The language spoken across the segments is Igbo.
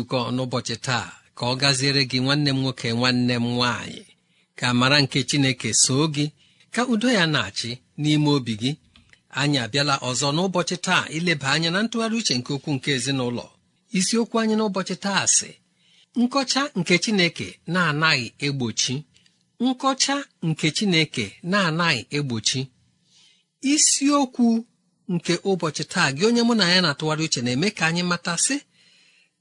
nzukọ n'ụbọchị taa ka ọ gaziere gị nwanne m nwoke nwanne m nwaanyị ka mara nke chineke soo gị ka udo ya na-achị n'ime obi gị anyị abịala ọzọ n'ụbọchị taa ileba anya na ntụgharị uche nke okwu nke ezinụlọ isiokwu anyị n'ụbọchị taa sị nkọcha nke chineke na-anaghị egbochi nkọcha nke chineke na-anaghị egbochi isiokwu nke ụbọchị taa gị onye mụ na ya na-atụgharị uche na-eme ka anyị mata sị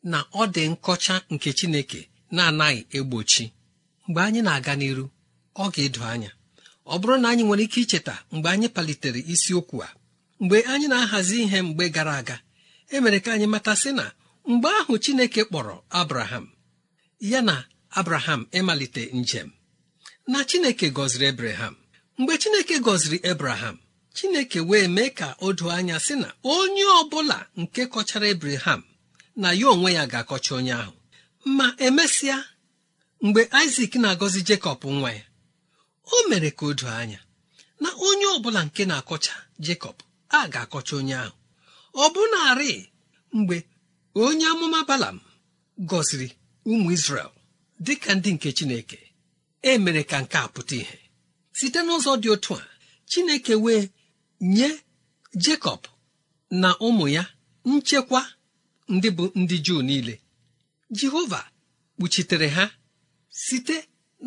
na ọ dị nkọcha nke Chineke na-anaghị egbochi mgbe anyị na-aga n'iru ọ ga-edo anya ọ bụrụ na anyị nwere ike icheta mgbe anyị palitere isiokwu a mgbe anyị na-ahazi ihe mgbe gara aga emere ka anyị mata sị na mgbe ahụ Chineke kpọrọ Abraham ya na Abraham ịmalite njem na Chineke gọziri Abraham mgbe Chineke gọziri Abraham Chineke wee mee ka o doo anya sị na onye ọ bụla nke kọchara Abraham na ya onwe ya ga-akọcha onye ahụ ma emesịa mgbe isak na-agọzi jekọb nwa ya o mere ka o anya na onye ọbụla nke na-akọcha jekọb a ga-akọcha onye ahụ ọ na mgbe onye amụma balam gọziri ụmụ isrel dịka ndị nke chineke e mere ka nke a pụta ihe site n'ụzọ dị otu a chineke wee nye jekọb na ụmụ ya nchekwa ndị bụ ndị juu niile jehova kpuchitere ha site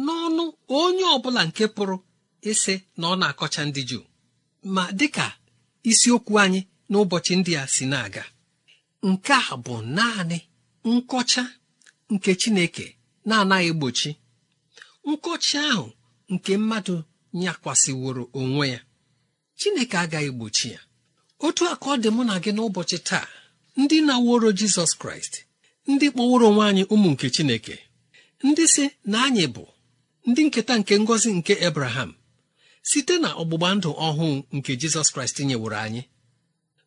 n'ọnụ onye ọbụla nke pụrụ ịsị na ọ na-akọcha ndị juu ma dịka isiokwu anyị n'ụbọchị ndị a si na-aga nke a bụ naanị nkọcha nke chineke na-anaghị egbochi nkọcha ahụ nke mmadụ nyakwasịworo onwe ya chineke agaghị egbochi ya otu aka ọ dị mụ na gị n'ụbọchị taa ndị na-aworo jizọs kraịst ndị kpọworo onwe anyị ụmụ nke chineke ndị si na anyị bụ ndị nketa nke ngọzi nke ebraham site na ọgbụgba ndụ ọhụụ nke jizọs kraịst nyeworo anyị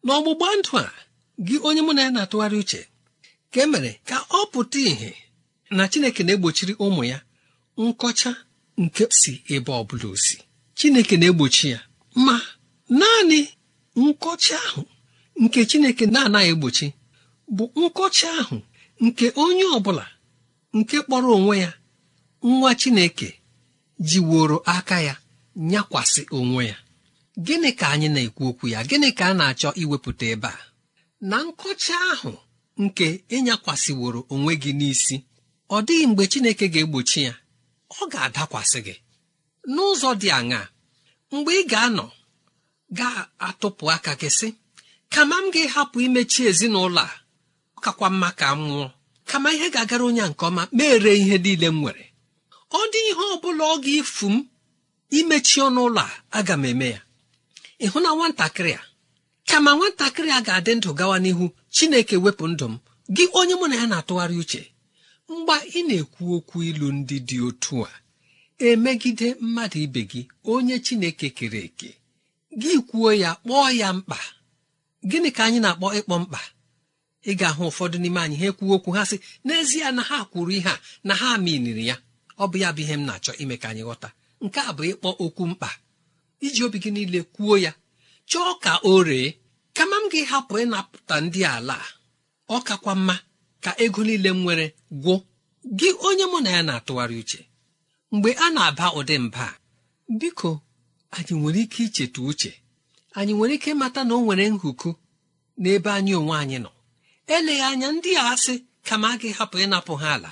n'ọgbụgba ndụ a gị onye mụ na ya na-atụgharị uche ka e mere ka ọ pụta ìhè na chineke na-egbochiri ụmụ ya nkọcha nke si ebe ọ bụla osi chineke na-egbochi ya ma naanị nkọcha ahụ nke chineke na-anaghị egbochi bụ nkọcha ahụ nke onye ọ bụla nke kpọrọ onwe ya nwa chineke jiworo aka ya nyakwasị onwe ya gịnị ka anyị na-ekwu okwu ya gịnị ka a na-achọ iwepụta ebe a na nkọcha ahụ nke ịnyakwasịworo onwe gị n'isi ọ dịghị mgbe chineke ga-egbochi ya ọ ga-adakwasị gị n'ụzọ dị aṅaa mgbe ị ga-anọ ga-atụpụ aka gị sị kama m ga-ahapụ imechi ezinụlọ a ọ kakwa mma ka m nwụọ kama ihe ga-agara onye a nke ọma mere ihe niile m nwere ọ dị ihe ọ bụla ọ ga-efu m imechi ọnụ ụlọ a aga m eme ya ịhụ na nwatakịrị a kama nwatakịrị a ga-adị ndụ gawa n'ihu chineke wepụ ndụ m gị onye mụ na ya na-atụgharị uche mgba ị na-ekwu okwu ilu ndị dị otu a emegide mmadụ ibe gị onye chineke kere eke gị kwuo ya kpọọ ya mkpa gịnị ka anyị na-akpọ ịkpọ mkpa ị ga-ahụ ụfọdụ n'ime anyị ha ekwuo okwu ha sị n'ezie na ha kwuru ihe a na ha miniri ya ọ bụ ya bụ ihe m na-achọ ime ka anyị ghọta nke a bụ ịkpọ okwu mkpa iji obi gị niile kwuo ya chọọ ka o ree kama m gị hapụ ịnapụta ndị ala ọ kakwa mma ka ego niile m nwere gwụ gị onye mụ na ya na-atụgharị uche mgbe a na-aba ụdị mba biko anyị nwere ike icheta uche anyị nwere ike ịmata na o nwere nhụku n'ebe anyị onwe anyị nọ eleghị anya ndị a asị kama a gị hapụ ịnapụ ha ala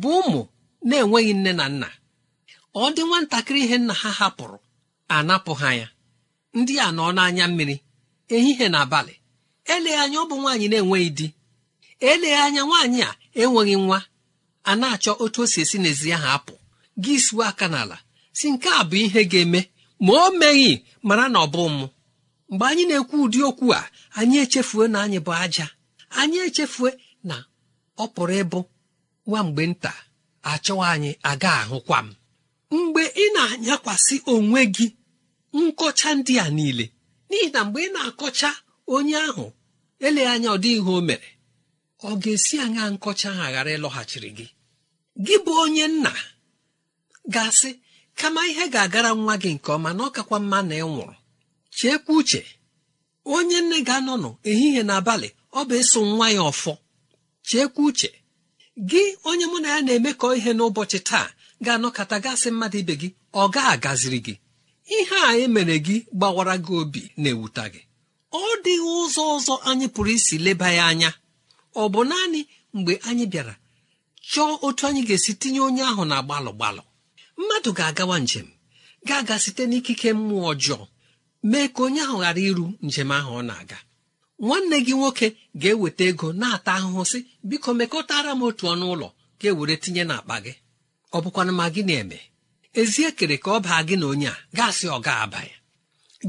bụ ụmụ na-enweghị nne na nna ọ dị nwatakịrị ihe nna ha hapụrụ anapụ ha ya ndị a nọ n'anya mmiri ehihie na abalị eleghị anya ọ bụ nwaanyị na-enweghị di eleghị anya nwaanyị a enweghị nwa a na-achọ otu o si esi n'ezi ahụ apụ gị suo aka n'ala si nke a bụ ihe ga-eme ma o meghị mara na ọ bụ mụ mgbe anyị na-ekwu ụdị okwu a anyị echefue na anyị bụ aja anyị echefue na ọ pụrụ ịbụ nwa mgbe nta achọwa anyị aga ahụkwa m mgbe ị na-anyakwasị onwe gị nkọcha ndị a niile n'ihi na mgbe ị na-akọcha onye ahụ eleghị anya ọ dịghị ihe o mere ọ ga-esi anya nkọcha ha ghara ịlọghachiri gị gị bụ onye nna gasị kama ihe ga-agara nwa gị nke ọma na ọ kakwa mma na ị nwụrụ chekwa uche onye nne ga-anọnụ ehihie na abalị ọ bụ eso nwa ya ọfọ chekwa uche gị onye mụ na ya na-emekọ ihe n'ụbọchị taa ga-anọkọta gasị mmadụ ibe gị ọ ga-agaziri gị ihe a emere gị gbawara gị obi na-ewuta gị ọ dịghị ụzọ ọzọ anyị pụrụ isi leba ya anya ọ bụ naanị mgbe anyị bịara chọọ otu anyị ga-esi tinye onye ahụ na gbalụ gbalụ mmadụ ga-agawa njem ga-aga site n'ikike mmụọ ọjọọ mee ka onye ahụ ghara iru njem ahụ ọ na-aga nwanne gị nwoke ga-eweta ego na-ata ahụhụ sị biko mekọtara m otu ọnụ ụlọ ga-ewere tinye n'akpa gị ọ bụkwana ma gị na-eme ezi ekere ka ọ baa gị na onye a gaasị ọ ga-aba ya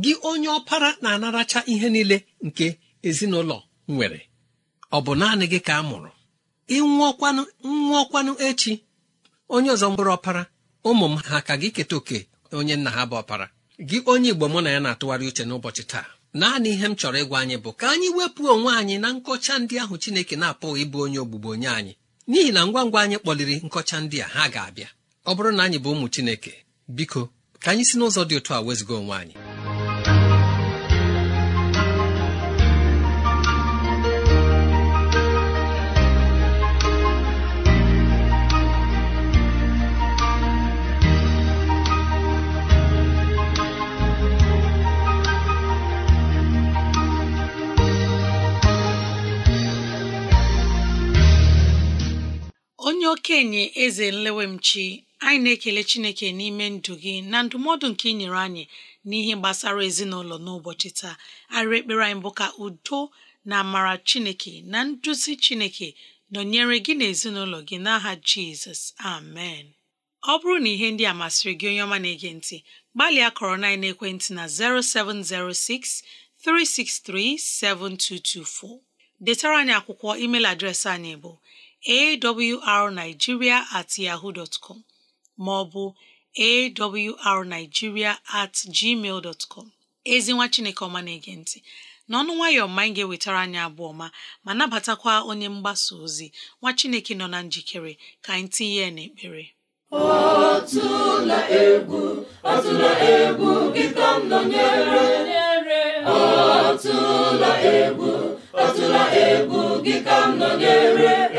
gị onye ọpara na-anaracha ihe niile nke ezinụlọ nwere ọ bụ naanị gị ka a mụrụ ịnwụọkwanụ nwụọkwanụ echi onye ọzọ mkpụrụ ọpara ụmụ m ha ka gị keta oke onye nna ha bụ ọpara gị onye igbo mụ na ya na-atụgharị uche n'ụbọchị taa naanị ihe m chọrọ ịgwa anyị bụ ka anyị wepụ onwe anyị na nkọcha ndị ahụ chineke na-apụghị ịbụ onye ogbugbo onye anyị n'ihi na ngwa ngwa anyị kpọliri nkọcha ndị a ha ga-abịa ọ bụrụ na anyị bụ ụmụ chineke biko ka anyị si n'ụzọ dị otu a wezụga onwe anyị okenye eze nlewemchi anyị na-ekele chineke n'ime ndụ gị na ndụmọdụ nke ị nyere anyị n'ihe gbasara ezinụlọ n'ụbọchị taa arịrị ekpere anyị bụ ka udo na amara chineke na nduzi chineke nọnyere gị na ezinụlọ gị n'aha jizọs amen ọ bụrụ na ihe ndị a masịrị gị onye ọma na-ege ntị gbalịa kọrọ na ekwentị na 0706 363 7224 detara anyị akwụkwọ email adreesị anyị bụ awrnigeria at yaho dtcom maọbụ ma ọ bụ awrnigeria at gmail ezi nwa chineke ọma na-ege ntị n'ọnụ nwayọọ ma anyị ga-ewetara anyị abụọ ma ma nabatakwa onye mgbasa ozi nwa chineke nọ na njikere ka anyị tinye ya n'ekpere ọtụla egwu ọtụla egwu gị ka m nọnyere ọtụla egwu ọtụla egwu gị ka m nọnyere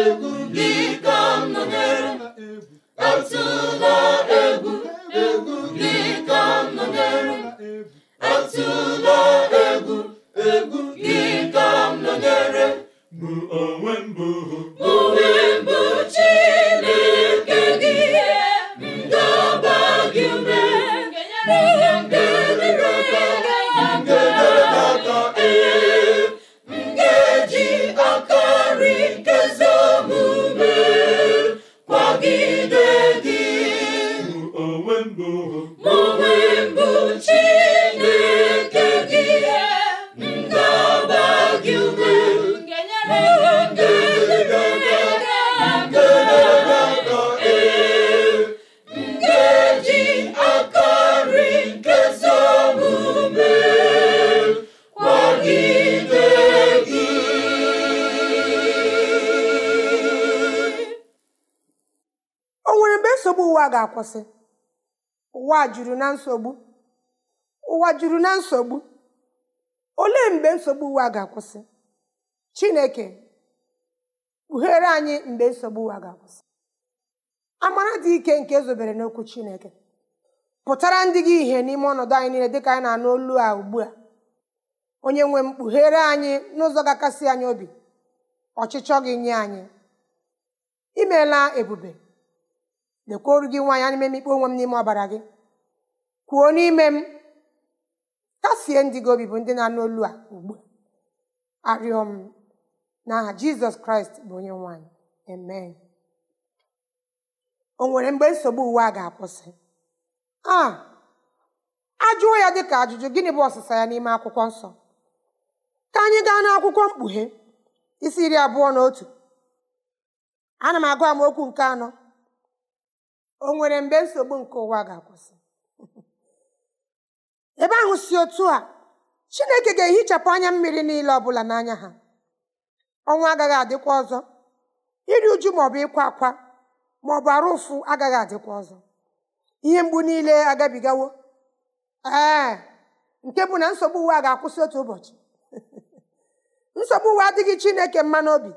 egwu dị ụwa ga-akwụsị ụwa juru na nsogbu ụwa juru na nsogbu olee mgbe nsogbu ụwa ga-akwụsị chineke kpughere anyị mgbe nsogbu ụwa ga-akwụsị amara dị ike nke ezobere n'okwu chineke pụtara ndị gị ihe n'ime ọnọdụ anyị niile dịka anyị na-anụ olu a ugbu a onye nwe m kpughere anyị n'ụzọ ga-akasị anyị obi ọchịchọ gị nye anyị imeela ebube lekwa oru gị nwaanyị ana m emikpe onwe m n'ime ọbara gị kwuo n'ime m kasie ndị gị obi bụ ndị na-anụ olu a ugbu arịọ m n'aha jizọs kraịst bụ onye nwaanyị amen o nwere mgbe nsogbu uwe a ga-akwụsị a ajụọ ya dịka ajụjụ gịnị bụ ọsịsa ya n'ime akwụkwọ nsọ ka anyị gaa n'akwụkwọ mkpughe isi iri abụọ na otu ana m agụ amaokwu nke anọ o nwere mgbe nsogbu nke ụwa ga-akwụsị ebe ahụ si otu a chineke ga-ehichapụ anya mmiri niile ọbụla n'anya ha ọnwa agaghị adịkwa ọzọ iri uju maọbụ ịkwa akwa maọbụ arụ ụfụ agaghị adịkwa ọzọ ihe mgbu niile agabigawo ee nke bụ na nsogbu uwe a ga-akwụsị otu ụbọchị nsogbu uwe adịghị chineke mma n'obi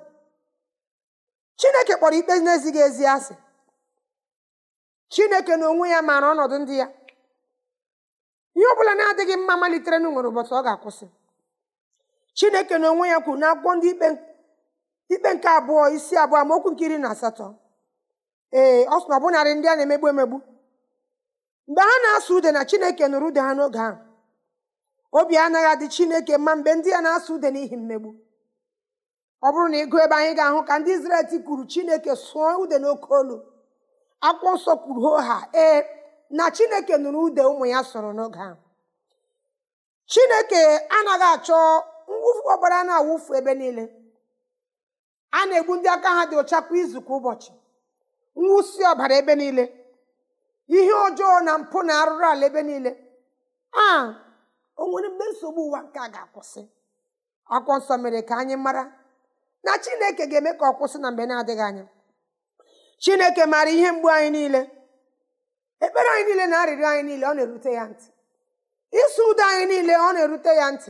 chineke kpọrọ ikpe na-ezighị ezi asị chineke na onwe ya maara ọnọdụ ndị ya ihe ọ bụla na-adịghị mma malitere n'ụnwere ụbọchị ọ ga-akwụsị chineke na onwe ya kwuru na akwụkwọ ndị ikpe nke abụọ isi abụọ okwu nke iri na asatọ ee ọ sị na ọbụnarị ndị a na-emegbu emegbu mgbe ha na-asụ ude na chineke nụrụ ude ha n'oge ahụ obi anaghị adị chineke mma mgbe ndị ya na-asụ ude n'ihi mmegbu ọ bụrụ na ịgụ ebe anyị ga-ahụ ka ndị Izrel tikwuru chineke sụọ ude n'oke olu akwụkwọ nsọ kwuru hoo ha ee na chineke nụrụ ude ụmụ ya soro n'oge ahụ chineke anaghị achọ mwụfu ọbara na-awụfu ebe niile a na-egbu ndị aka ha dị ọcha kwa izu kwa ụbọchị mwụsi ọbara ebe niile ihe ọjọọ na mpụ na arụrụ ala ebe niile a onwere mgbe nsogbu ụwa nke a ga-akwụsị akwụkwọ nsọ mere ka anyị mara na chineke ga-eme ka ọ kwụsị na mgbe na-adịghị anya chineke maara ihe mgbu anyị niile ekpere anyị niile na arịrịọ anyị niile ọ na-erute ya ntị ịsụ ụdọ anyị niile ọ na-erute ya ntị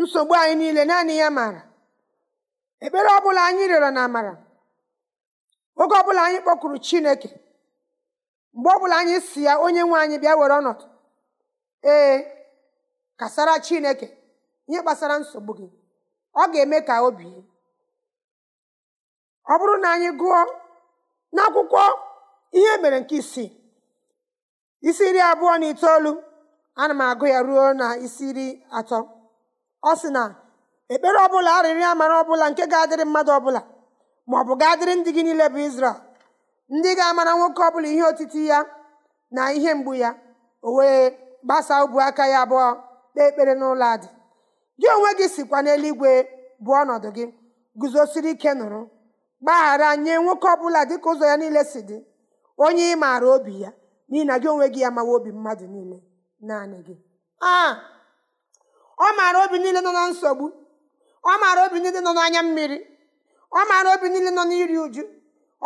nsogbu anyị niile naanị ya maara ekpere ọbụla anyị rịọrọ na amara oge ọbụla anyị kpọkuru chineke mgbe ọbụla anyị si ya onye nwe anyị bịa were ọnọdụ ee kasara chineke ihe gbasara nsogbu gị ọ ga-eme ka obi ọ bụrụ na anyị gụọ n'akwụkwọ ihe mere nke isii isi iri abụọ na itoolu ana m agụ ya ruo na isi iri atọ ọ sị na ekpere ọbụla arịrịọ amara ọbụla nke ga-adịrị mmadụ ọbụla ma ọ bụ ga-adịrị ndị gị niile bụ Izrel ndị ga-amara nwoke ọbụla ihe otiti ya na ihe mgbu ya o wee gbasaa ubu aka ya abụọ kpee ekpere n'ụlọ adị gị onwe gị sikwa n'eluigwe bụ ọnọdụ gị guzosiri ike nụrụ gbaghara nye nwoke ọbụla dịka ụzọ ya niile si dị onye ị maara obi ya n'ihi na gị onwe gị ya mawa obi mmadụ niile naanị gị a ah! ọ maara obi niile nọ na nsogbu ọ maara obi niile nọ n'anya mmiri ọ maara obi niile nọ n'iri uju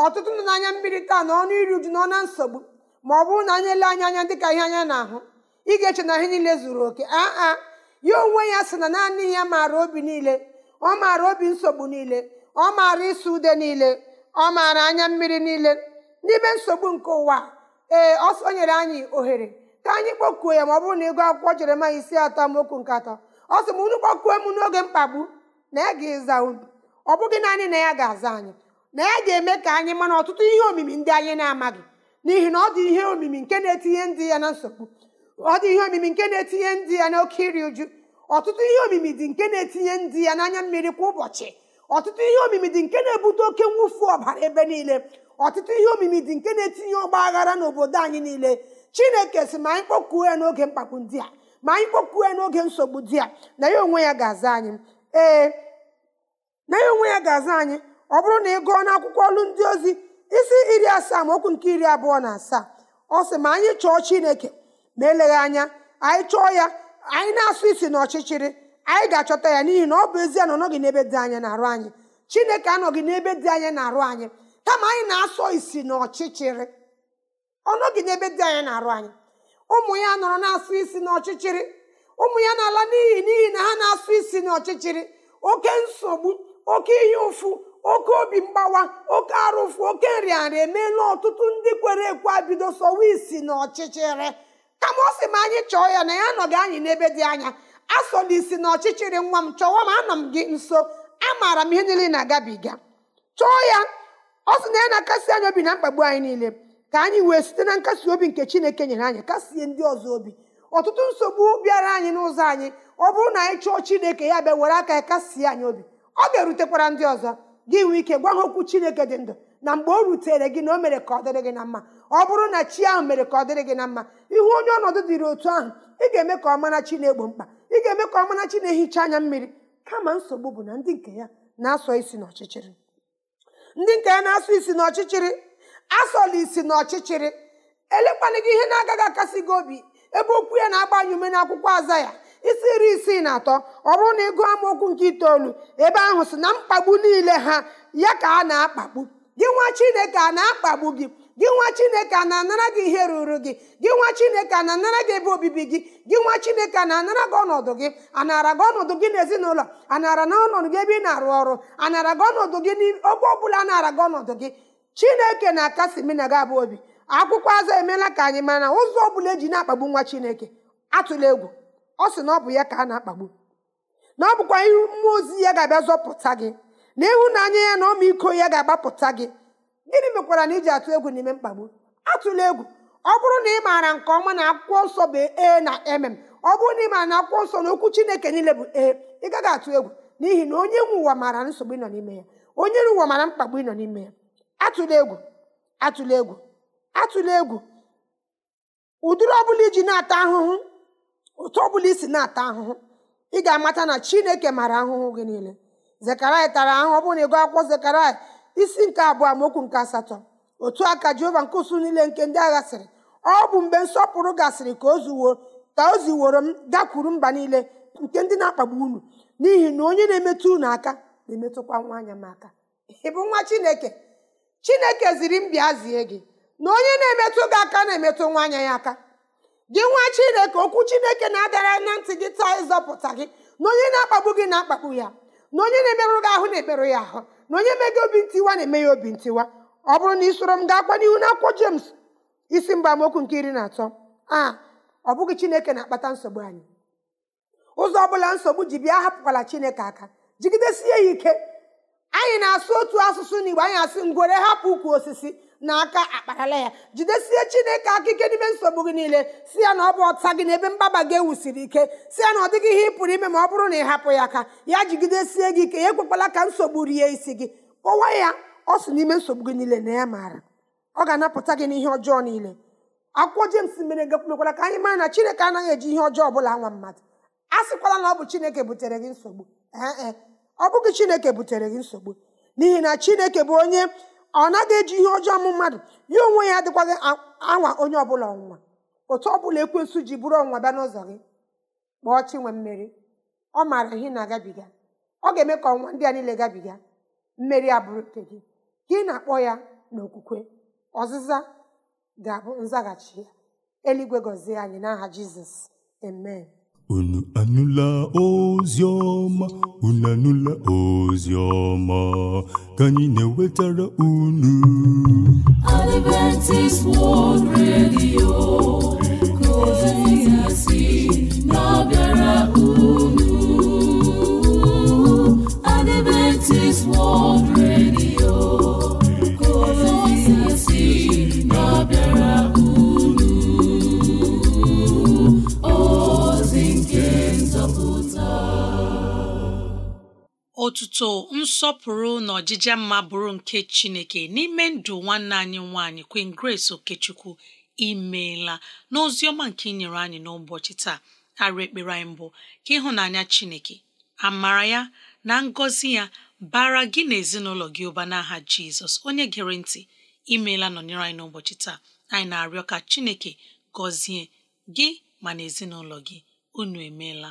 ọtụtụ nọ n'anya mmiri taa na ọnụ iri uju nọ na nsogbu ma ọ bụrụ na anyị ele anya anya dịka ihe anya na-ahụ ị ga-eche na ihe niile zuru oke aa ah, ah! ya onwe ya sị na naanị ya maara obi niile ọ maara obi nsogbu niile ọ maara ịsụ ude niile ọ maara anya mmiri niile n'ime nsogbu nke ụwa ee ọ nyere anyị ohere ka anyị kpokuo ya ma ọ bụrụ na ịgụ akwụkwọ ma isi atọ amaokwu nke atọ ọ sị m unu kpọkuo m n'oge mkpagbu na ya ga-ịza unu ọ bụghị naanị na ya ga-aza anyị na ya ga-eme ka anyị mara ọtụtụ ihe omimi ndị anyị na-amaghị n'ihi na ọ dị ihe omimi nke na-etinye ndị ya na nsogbu ọ dị ihe omimi nke na-etinye ndị ya n'oke iri uju ọtụtụ ihe omimi dị nke na-etinye ndị ya n'anya mmiri kwa ụbọchị ọtụtụ ihe omimi dị nke na-ebute oke mwụfu ọbara ebe niile ọtụtụ ihe omimi dị nke na-etinye ọgba aghara n'obodo anyị niile chineke si ma anyị kpọkuo ya n'oge mkpakpu ndị a ma anyị kpọkuo ya n'oge nsogbu di a na ya onwe ya ga-aza anyị ee na ya onwe ya ga-aza anyị ọ bụrụ na ị gụọ akwụkwọ ọlụ ndị ozi isi iri asaa ma okwu nke iri abụọ na asaa ọ sị ma anyị chọọ chineke ma eleghị anya anyị chọọ ya anyị na-asụ isi n'ọchịchịrị anyị ga-achọta ya n'ihi na ọ bụ ezie na ọ n'ebe dị anya na-arụ anyị chineke anọghị n'ebe dị anya na-arụ anyị kama anyị na-asọ isi na ọchịchịrị ọ n'ebe dị anya na-arụ anyị ụmụ ya nọrọ na-asụ isi n'ọchịchịrị ụmụ ya na-ala n'ihi n'ihi na ha na-asụ isi na ọchịchịrị. oke nsogbu oke ihe ụfụ oke obi mgbawa oke arụfụ oke nrịanrịa emeela ọtụtụ ndị kwere ekwe abido sọwa isi na ọchịchịrị kama ọ sị ma anyị chọọ ya na ya anọghị anyị n'ebe dị anya asọla isi na ọchịchịrị nwa m chọwa m anọ m gị nso amaara m ihe niile na-agabiga chọọ ya ọ sị na ya na-akasi anyị obi na mkpagbu anyị niile ka anyị wee site na nkasi obi nke chineke nyere anyị kasie ndị ọzọ obi ọtụtụ nsogbu bịara anyị n'ụzọ anyị ọ bụrụ na anyị chọọ chineke ya bịa were aka ya kasie anyị obi ọ ga-erutekwara ndị ọzọ gị nwee ike gwa ha okwu chineke dị ndụ na mgbe o rutere gị na o mere ka ọ dịrị gị na mma ọ bụrụ na chi ahụ mere ka ọ dịrị gị na mma ihu onye ọnọdụ dịrị otu ahụ ị ga-eme ka ọ mara chi na-egbo mkpa ị ga-eme ka ọmarachi na-ehicha anya mmiri kama nsogbu bụ na ndị nke ya na-asọ isi n'ọchịchịrị ndị nke ya na-asọ isi n'ọchịchịrị asọla isi n'ọchịchịrị elekwana gị ihe na-agaghị akasị gị obi ebe okwu ya na-agbanye ume akwụkwọ aza ya isi iri isii na atọ ọ bụrụ na ịgụ amaokwu nke itoolu ebe ahụ si na mkpagbu niile ha ya ka a na-akpagbu gị nwa chineke a na-akpagbu gị gị nwa chineke a na-anara gị ihe ruru gị gị nwa chineke a na-anara gị ebe obibi gị gị nwa chineke na-anara gị ọnọdụ gị anara gị ọnọdụ gị n'ezinụlọ anara na ọnọdụ gị ebe ị na-arụ ọrụ anara gị ọnọdụ gị n'oge ọbụla anara gị ọnọdụ gị chineke na-akasi mina gị abụ obi akwụkwọ azụ emeela ka anyị na ụzọ ọbụla eji na-akpagbu nwa chineke atụla egwu ọ sị na ọ bụ ya ka a na-akpagbu na ọ bụkwa ihu mmụọ ozi ya ga-abịa zọpụta gị na ịhụnanya ya na ọmaiko ya ga-agbapụta gị gịnị mekwara na iji atụ egwu n'ime mkpagbu atụla egwu ọ bụrụ na ị maara nke ọma na akwụkwọ nsọ bụ e na emem ọ bụrụ na ị maara na akwụkwọ nsọ na okwu chineke niile bụ e ị gaghị atụ egwu n'ihi na onye nwe ụwa maara nsogbu ị nọ n'ime ya onye nwe ụwa maara mkpagbu ị nọ n'ime ya atụla egwu atụla egwu atụla egwu ụdịrị ọbụla iji na-ata ahụhụ bụla ọbụla isi na-ata ahụhụ ị ga-amata na chineke maara ahụhụ gị niile zekaraya tara ahụhụ ọ bụrụ na ịgụ akwụkwọ zekaraya isi nke abụọ amaokwu nke asatọ otu aka jehova nke usu niile nke ndị agha sịrị ọ bụ mgbe nsọpụrụ gasịrị ka ozuwo ka o ziworo m gakwuru mba niile nke ndị na-akpagbu unu n'ihi na onye na-emetụ unu aka na-emetụkwa nwa anya m aka Ịbụ bụ nwa chineke chineke ziri m bịa zie gị na onye na-emetụ gị aka na-emetụ nwa anya ya aka gị nwa chineke okwu chineke na-adara na ntị gị taa ịzọpụta gị na onye na-akpagbu gị na-akpagbu ya na onye na-emerụ gị ahụ na-emerụ ya ahụ na onye mega obi ntiwa na-eme ya obi ntiwa ọ bụrụ na ị soro m gaa kwa n'ihu n'akwụkwọ Jems isi mba amaokwu nke iri na atọ a ọ bụghị Chineke na-akpata nsogbu anyị ụzọ ọbụla nsogbu ji bịa hapụkwala Chineke aka jigidesie ya ike anyị na-asụ otu asụsụ n'Igbo anyị asị ngwere hapụ ukwu osisi n'aka akparala ya jidesie chineke aka ike n'ime nsogbu gị niile si ya na ọ bụ ọta gị n'ebe mgbaba gị ewusiri ike si ya na ọ dịghị ihe ị pụrụ ime ma ọ bụrụ na ị hapụ ya aka ya jigidesie gị ike ya ekwekwala ka nsogbu rie isi gị kpọwa ya ọ si n'ime nsogbu gị niile na ya maara ọ ga-anapụta gị n'ihe ọjọọ niile akwụkwọ Jems mere mekwara ka anyị mara na chineke anaghị eji ihe ọjọọ bụla nwa mmadụ a sịkwala na ọ bụ chineke butere gị nsogbu ee ọ bụghị chineke butere gị nsogbu n'ihi na chineke bụ onye ọ naghị eji ihe ọjọọ mụ mmadụ ya onwe ya adịkwaghị anwa onye ọbụla ọnwụnwa otu ọbụla ekwensu ji bụrụ ọnwụnwa bịa n'ụzọ gị kpọọ chinwe mmeri ọ maara ihe na-agabiga ọ ga-eme ka ọnwa ndị a niile gabiga mmeri abụrụ nke gị ka ị na-akpọ ya n'okwukwe ọzịza ga-abụ nzaghachi ya eluigwe gọzie anyị n'aha jizọs amen Unu anụla ozi ọma, unu anụla ozi ka anyị na-ewetara unu. otuto nsọpụrụ na ọjịja mma bụrụ nke chineke n'ime ndụ nwanne anyị nwaanyị Queen Grace Okechukwu imeela n'ozi ọma nke inyere anyị n'ụbọchị taa arịa ekpere anyị mbụ ka ịhụnanya chineke amara ya na ngọzi ya bara gị na ezinụlọ gị ụba n'aha jizọs onye gere ntị imeela nọnyere anyị n'ụbọchị taa anyị na-arịọ ka chineke gọzie gị ma na ezinụlọ gị unu emeela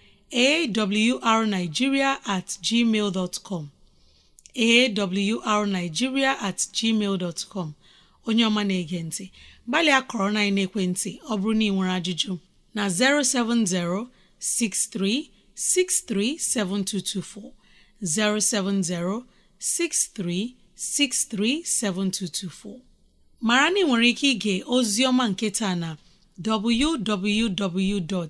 awrnigeria at gmail dot com awrnigeria at gmail dot com onye ọma na-ege ntị gbalịa kọrọ na ekwentị ọ bụrụ na ị nwere ajụjụ na 07063637224 07063637224 mara na ị nwere ike ige ozi ọma nke taa na www.